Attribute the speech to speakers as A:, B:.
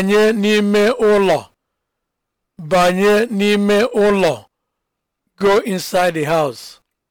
A: banye n'ime ụlọ banye n'ime ụlọ go inside the house